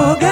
gb